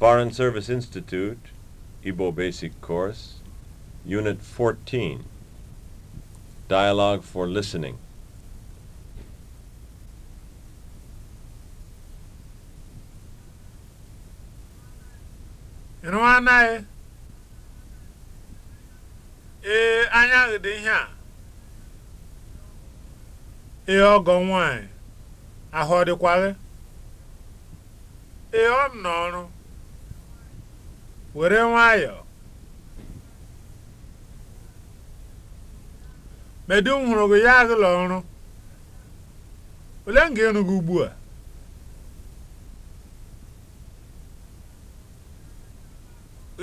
Foreign Service Institute, Ibo Basic Course, Unit 14, Dialogue for Listening. ịrụ anaghị ee anyaghị dị ihe a ee ọgọ nwanyị ahụ ọ dịkwaghị ee ọ m n'ọrụ were nwayọọ medu m hụrụ gị ya agụla ọrụ ole m ga-eru gị ugbu a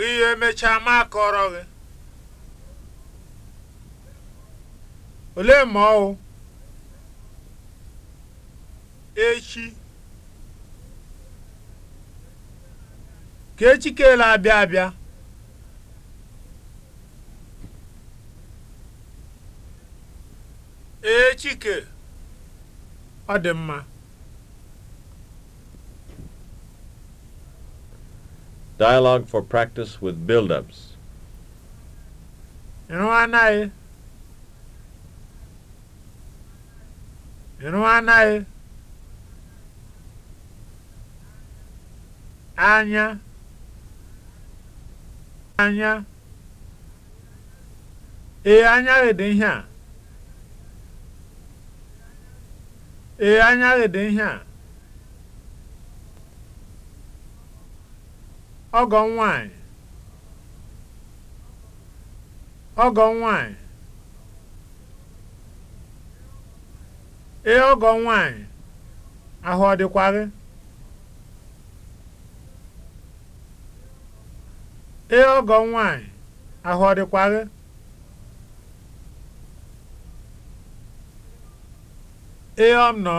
ihe emechaa ma akọrọ gị ole ma ọwụ echi ka echikele abịa abịa echike ọ dị mma Dialogue for practice with build-ups. anaghị. Anya. anya ee anyaghị dị ihe a ee anyaghị dị ihe a ọgọ nwanyị ọgọ nwanyị ee ọgọ nwanyị ahụ ọ dịkwa gị Ee ọgọ m nwaanyị, ahụ ọ dịkwa gị? Ee ọ m nọ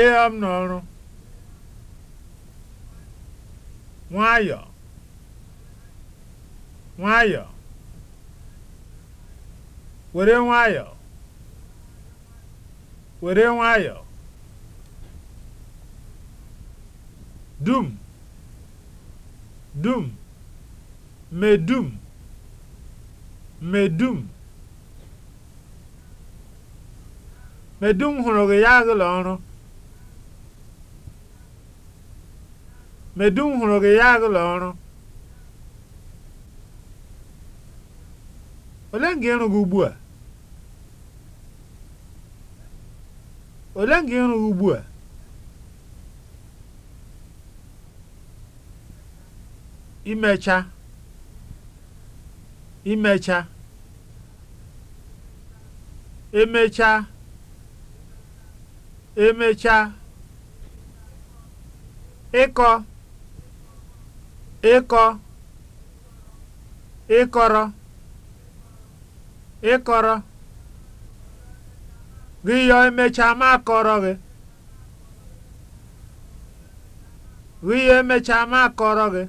Ee ọ m nọ ọrụ. were nwayọ, were nwayọ, dum dum medum medum medum hụrụ gị ya agụla ọrụ medum hụrụ gị ya agụla ọrụ ole nga ịrụ gị ugbu a ole nga ịrụ gị ugbu a imecha imecha emecha emecha ịkọ ịkọ ịkọrọ ịkọrọ gị yọ emecha ma akọrọ gị gị yọ emecha ma akọrọ gị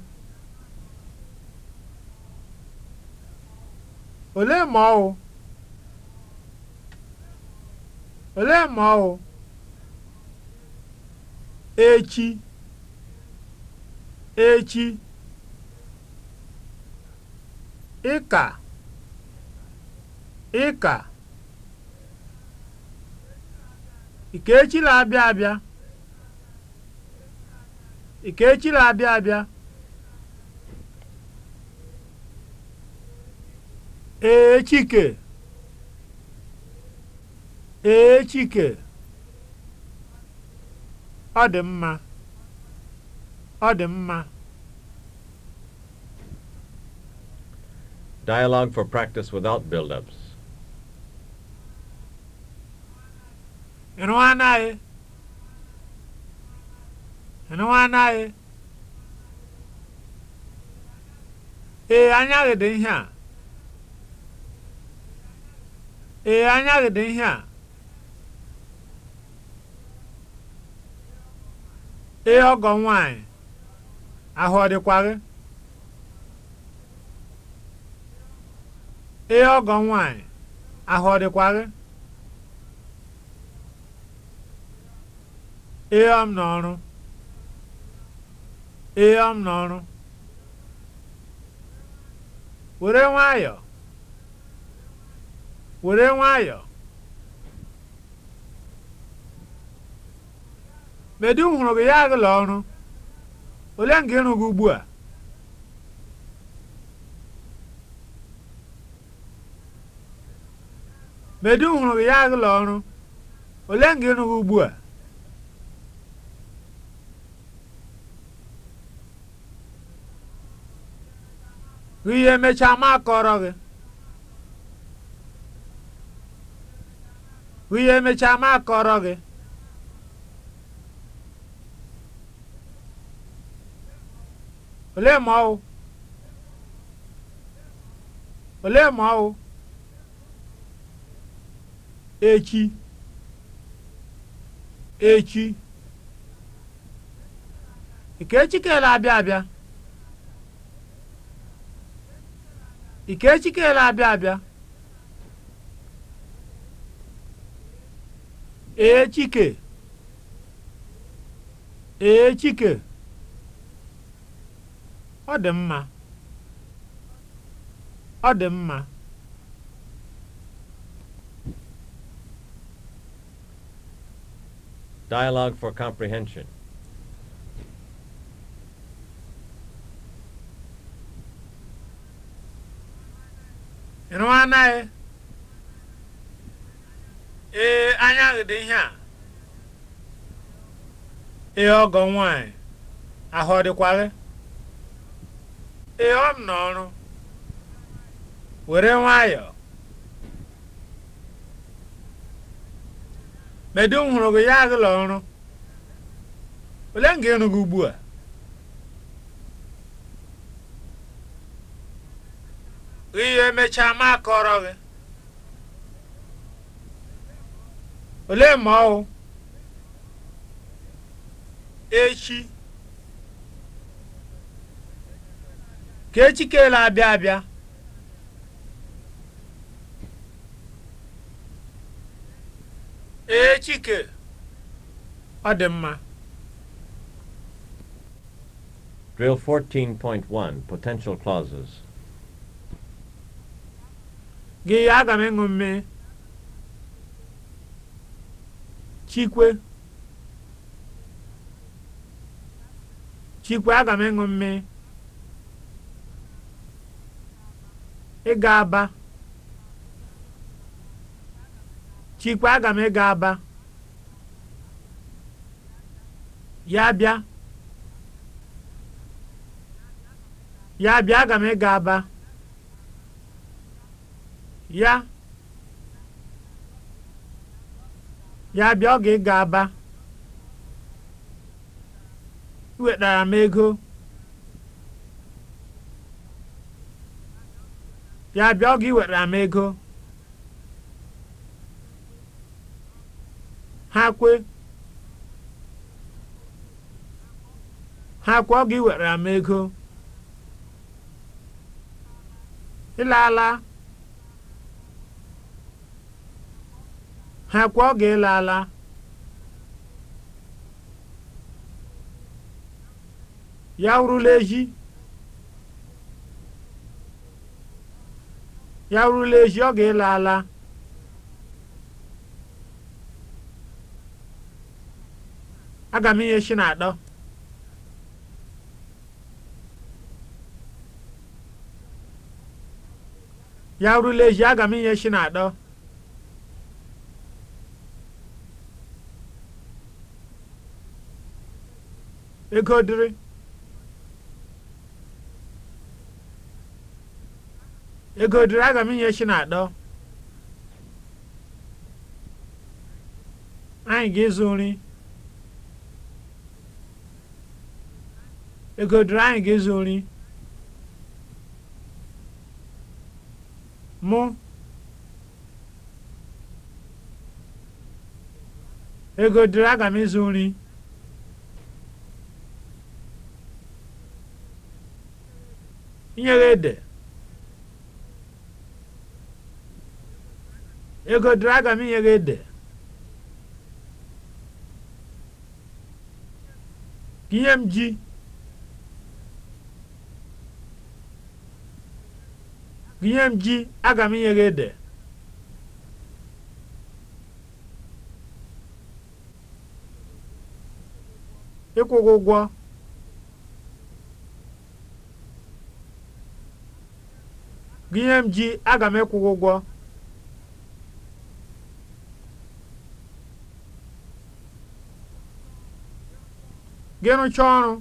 olee ma ọ olee ma ọ echi echi ịka ịka ikechi na-abịa abịa ikechi na-abịa abịa ee chike ọ dị mma ọ dị mma Dialogue for practice without build-ups. Ịnụ anaghị. Ịnụ anaghị. Ee, anyaghị dị ihe a. ee anya gị dị ihe a ee ọgọ nwanyị ahụ ọ dịkwa gị ee ọgọ nwanyị ahụ ọ dịkwa gị ee ọ m n'ọrụ ee ọ m n'ọrụ were nwayọọ were nwayọ medu hụrụ gị ya agụla ọrụ ole nga ịrụ gị ugbu a medu hụrụ gị ya agụla ọrụ ole gị ugbu a ihe emechaa ma akọrọ gị ihe emechaa ma akọrọ gị olee ma ọwụ olee ma ọwụ echi echi ikechi abịa abịa abịa abịa ee chike ee chike ọ dị mma ọ dị mma Dialogue for comprehension. ịnụ anaghị ee anya dị ihe a ee ọgọ nwanyị ahụ ọ ee ọ m n'ọrụ were nwayọọ medu m hụrụ gị ya agụla ọrụ ole m ga gị ugbu a ihe mechaa ma akọrọ gị olee ma ọ echi ka echi kele abịa abịa echike ọ dị mma Drill 14.1 Potential Clauses. Gị aga m ịṅụ mmiri. chikwe chikwe aga m ịṅụ mmiri ịga aba chikwe aga m ịga aba ya bịa ya bịa aga m ịga aba ya ya bịa oge ị ga-aba iwetara m ego ya bịa ga iwetara m ego ha kwe ha kwe ga iwetara m ego ala. ha kwa oge ịla ala ya wurula ehi ya wurula ehi oge ịla ala aga m inye shi na adọ ya wurula ehi aga m inye shi na adọ ego dịrị ego dịrị aga m inye chi na atọ anyị ga-ịzụ nri ego dịrị anyị ga-ịzụ nri mụ ego dịrị aga m ịzụ nri nyeghede ego dịrị aga m inyeghede ka ihe m ji ka ihe m ji aga m inyeghede ụgwọ gịnị m ji aga m ịkwụ ụgwọ gị rụchaa ọrụ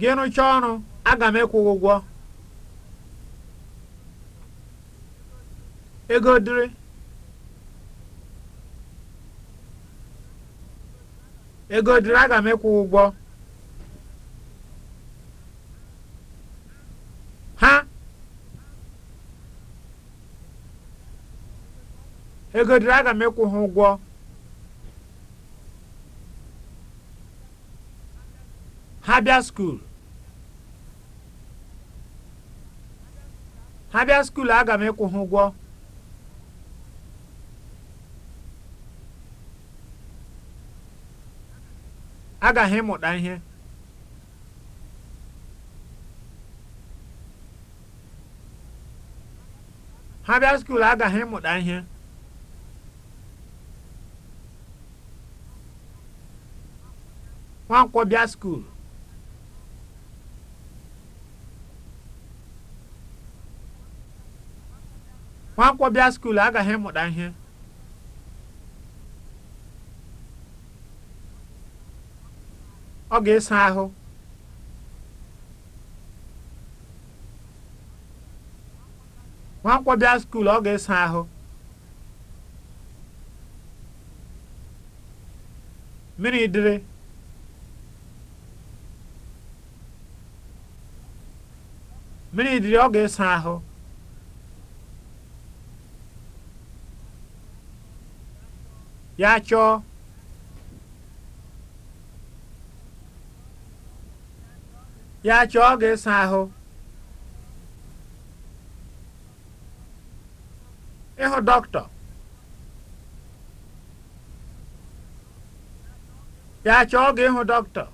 gị rụchaa ọrụ aga m ịkwụ ụgwọ ego dịrị ego dịrị aga m ịkwụ ụgwọ ha ego dịrị aga m ịkwụ ha ụgwọ ha bịa skuul ha bịa skuul aga m ịkwụ ha ụgwọ agaghị ịmụta ihe ha bịa skuul agaghị ịmụta ihe nwankwọ bịa skuul nwankwọ bịa skuul agaghị ịmụta ihe ọ ga-esa ahụ nwakwọ bịa skuul ọ ga-esa ahụ mmiri dịrị mmiri dịrị ọ ga-esa ahụ ya chọọ ya chọọ gị ịsa ahụ ịhụ dọkịta ya chọọ gị ịhụ dọkịta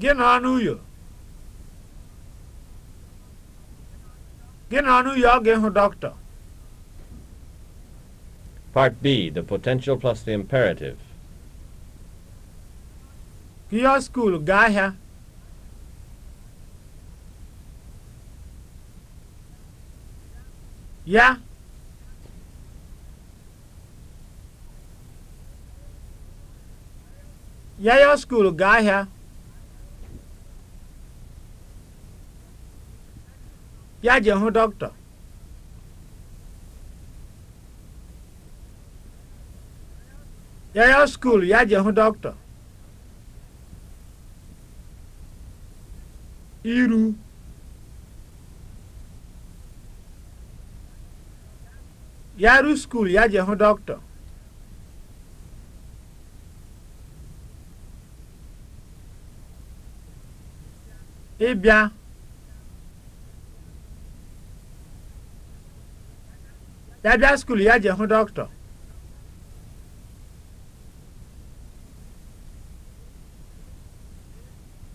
gị nọ n'uyo gị nọ n'uyo ọ ga-ịhụ dọkịta Part B, the potential plus the imperative. pịọ skuul gaa ahịa ya yayọ skul gaa ahịa ya je hụ dọkịta yayọ skul ya je hụ dọkịta iru ya ru skul ya jee hụ dọkịta ịbịa ya bịa skuul ya je hụ dọkịta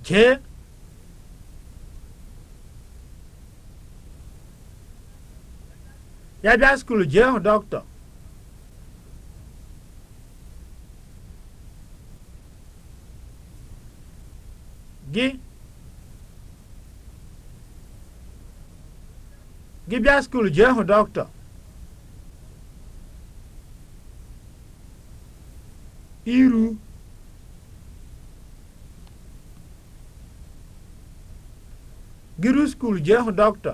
jee ya bịa skul jee hụ dọkịta gị gị bịa skul jee hụ dọkịta iru Gịrị skul jee hụ dọkịta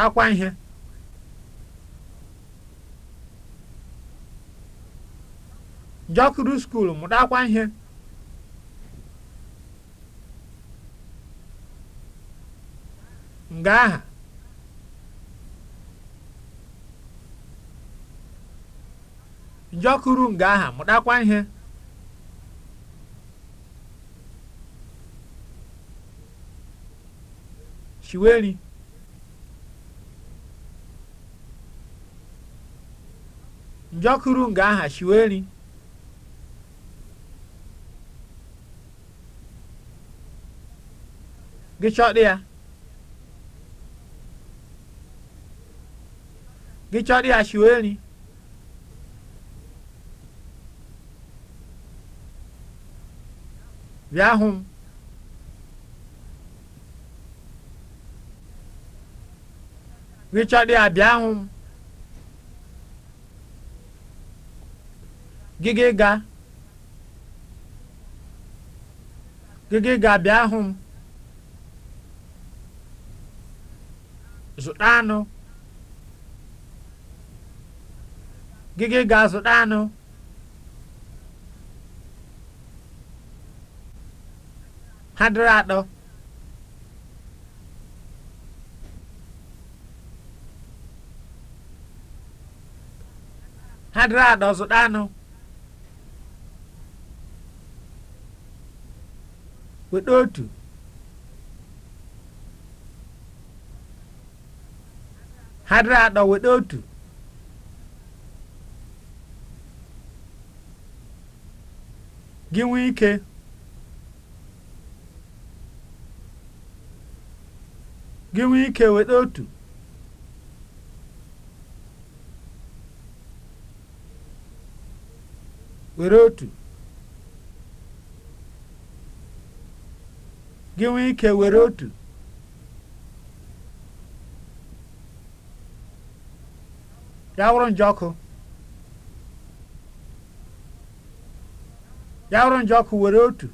mụtakwa ihe jọkuru skuul mụtakwa ihe nga aha njọkuru nga aha mụtakwa ihe chiweri njọkụrụ nga aha shiweri gị chọdị ya gị chọdị bịa hụ m bịa hụ m gịga gịga ịga bịa hụ m zụta anụ ịga zụta anụ ha dịrị atọ ha dịrị atọ zụta anụ weta otu hadịrị atọ weta otu gị nwee ike gị nwee ike weta otu were otu gị nwee ike were otu ya wụrụ ọkụ ya wụrụ njọkụ were otu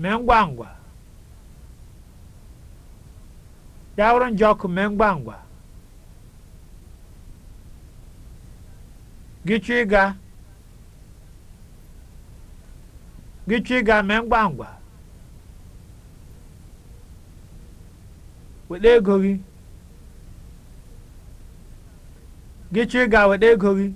mee ngwa ngwa ya wụrụ njọkụ mee ngwa ngwa gị chọ ịga Gichi ga-eme ngwa ngwa. Weta ego weta ego gị.